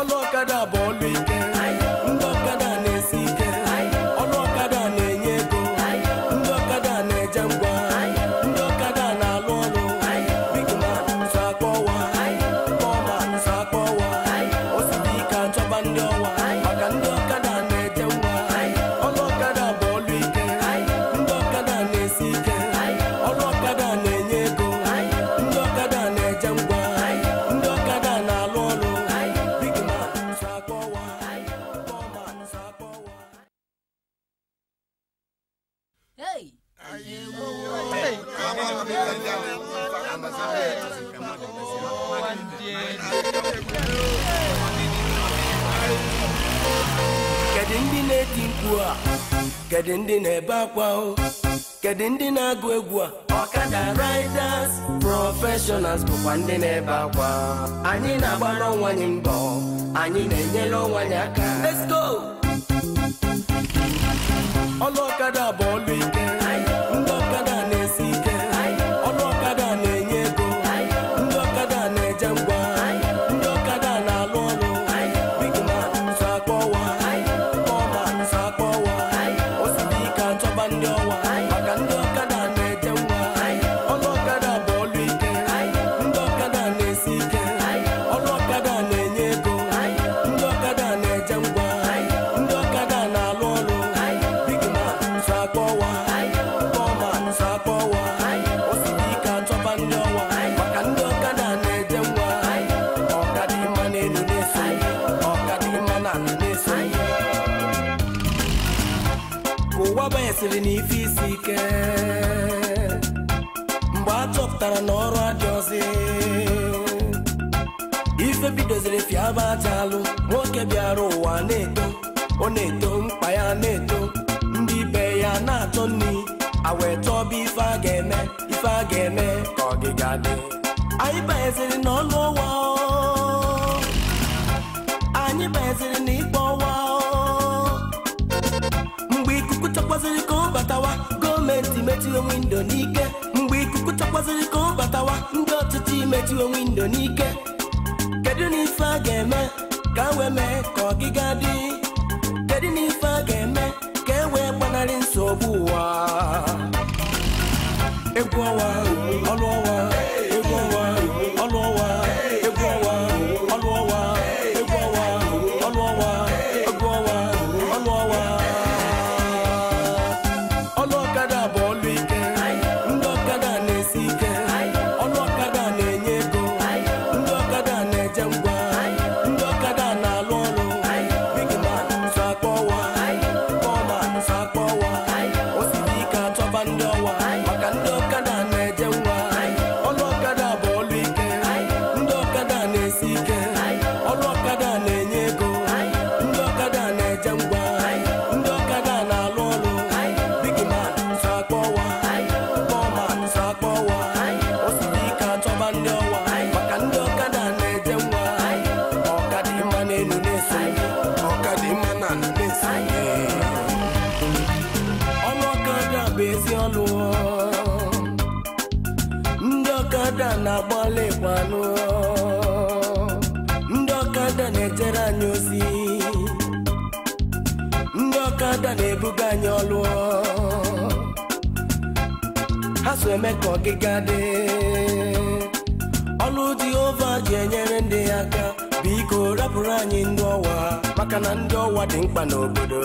ọlọ́kadà bọ́ọ̀lù ike. Hey. kedu ndị na-eti mkpu a kedu ndị na-ebe akwa o kedu ndị na-agụ egwu a ọkada riders professionals bụkwa ndị na-ebe akwa anyị na-agbara ọnwa anyị mbọ anyị na-enyere ọnwa anyị aka let's go ọnụ ọkada abụọ sịrị na ife isi ike mgbe a chọpụtara na ọrụ adị ọzọ ife bidoziri fiaba aja alụ nwoke bịara ụwa na-eto ọ na-eto mkpa ya na-eto ndị be ya na-achọ nri awee chọba ife a ga-eme ife a ga-eme ka ọgịga dị anyị banyeziri n'ọnụ chọkwazịrị ka ọ batawa gọọmenti metiwe windo n'ike mgbe ikuku chọkwazịrị ka ọ batawa ndị ọchịchị imetiwe windo n'ike kedu na ife a ga-eme ka a e wee mee ka ọgịga dị kedu na ife a ga-eme ka e wee gbanarị nsogbu ụwa egwu ọnwa ọnwa ọkada na-agbalị gbalụ ndị ọkada na-ejere anyị ozi ndị ọkada na-ebuga anyị ọlụ ha so eme ka ọgịga dị ọlụ Jehova ji enyere ndị ya aka biko rapụrụ anyị ndị ọwa maka na ndị ọwa dị mkpa n'obodo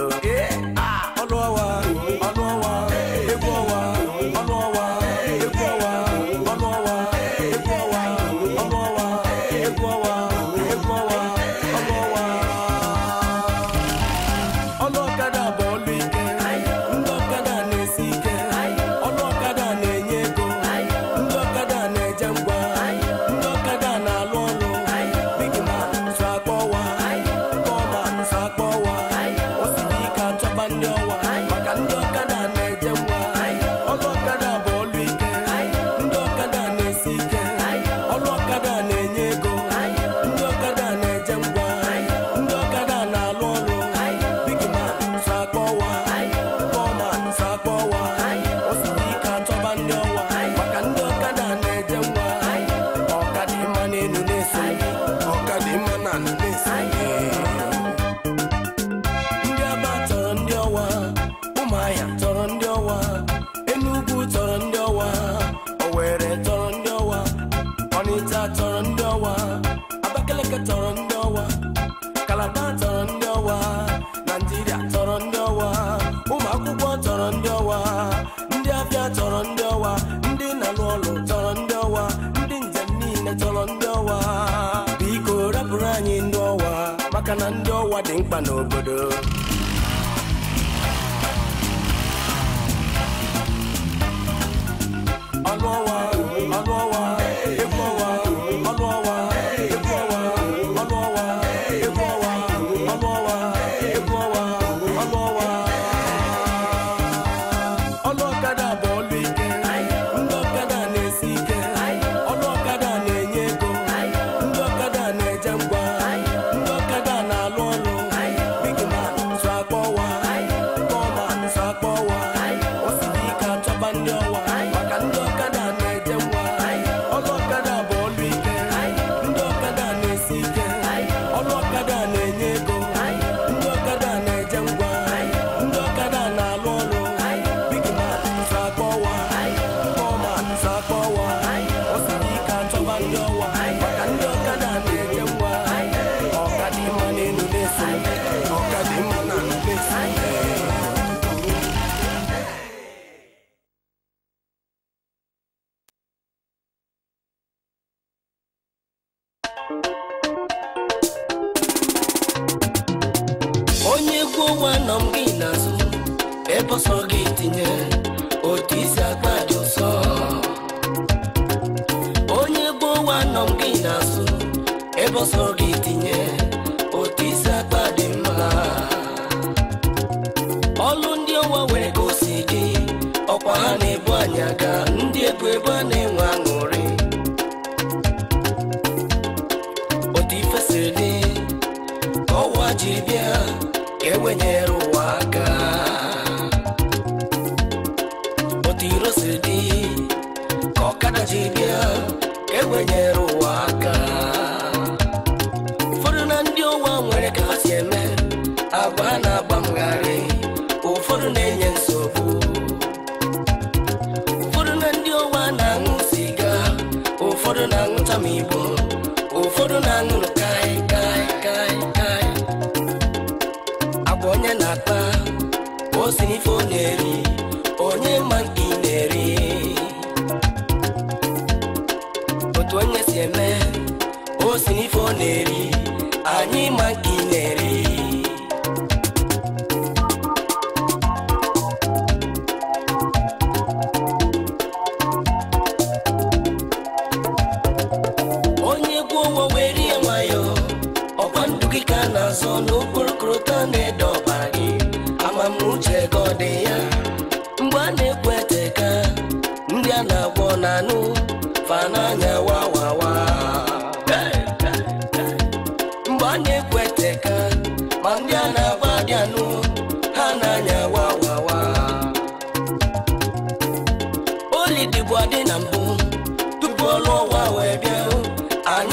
ọ dị mkpa n'obodo onye egwu ọnwa nọ m gị n'azụ ebe ọsọ gị tinye otu isi akpa dị ụsọ onye egwu ọnwa nọ m gị n'azụ ebe ọsọ gị tinye otu isi akpa dị mma ọlụ ndị ọwa nwere ka o si gị ọkwa ha na-ebu anya ga ndị ebu ebe a na-enwe aṅụrị wenye ruwaka otiro sidi kokada na ndị ụwa nwere ka ha si eme agba na ife na-eri anyị ma nke ị na-eri onye gwuo wee rie nwayọ ọkwa ndụ gị ka a na-azọ n'okporokoro na-ede ọbara gị amamnuche ka ọ dị ya mgbe a na-ekwu eteka ndị a na-agwọ na anụ fa n'anya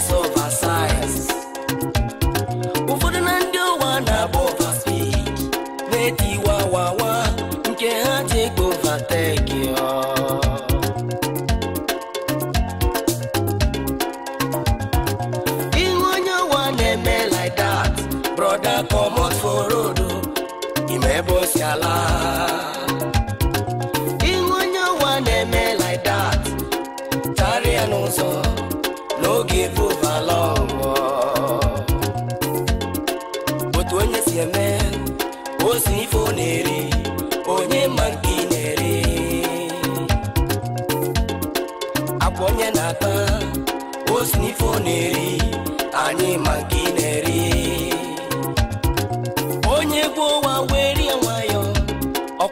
place of our size ụfọdụ na ndị ụwa na-agba overspeed na-eti wawawa nke ha ji ekpe overtake ihu onye ụwa na-eme like that broda comot for road you ebe boss si ala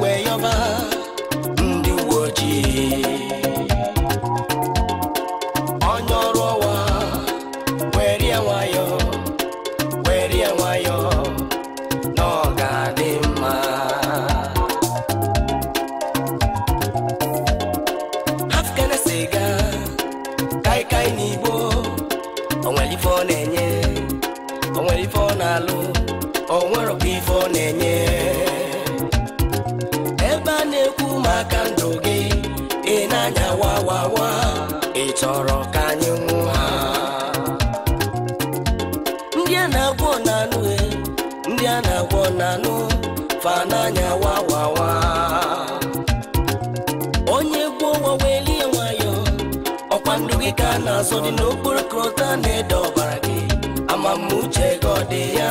weyọba ndị uwe ojii onye ọrụ ọwa were ya nwayọ were ya nwayọ na ọ ga-adị mma afgana siga kaikai na igbo onwere ife ọ maka ndụ gị ị na-anya wawawa ị chọrọ ka anyị nwụọ ndị a na-agwọ na-anụ e, ndị a na-agwọ na-anụ fa n'anya wawawa onye gwuo lie nwayọ ọkwa ndụ gị ka a na-azọ dị n'okporo krota na-ede ọbara gị ama m ọ dị ya